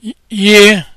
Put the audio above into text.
year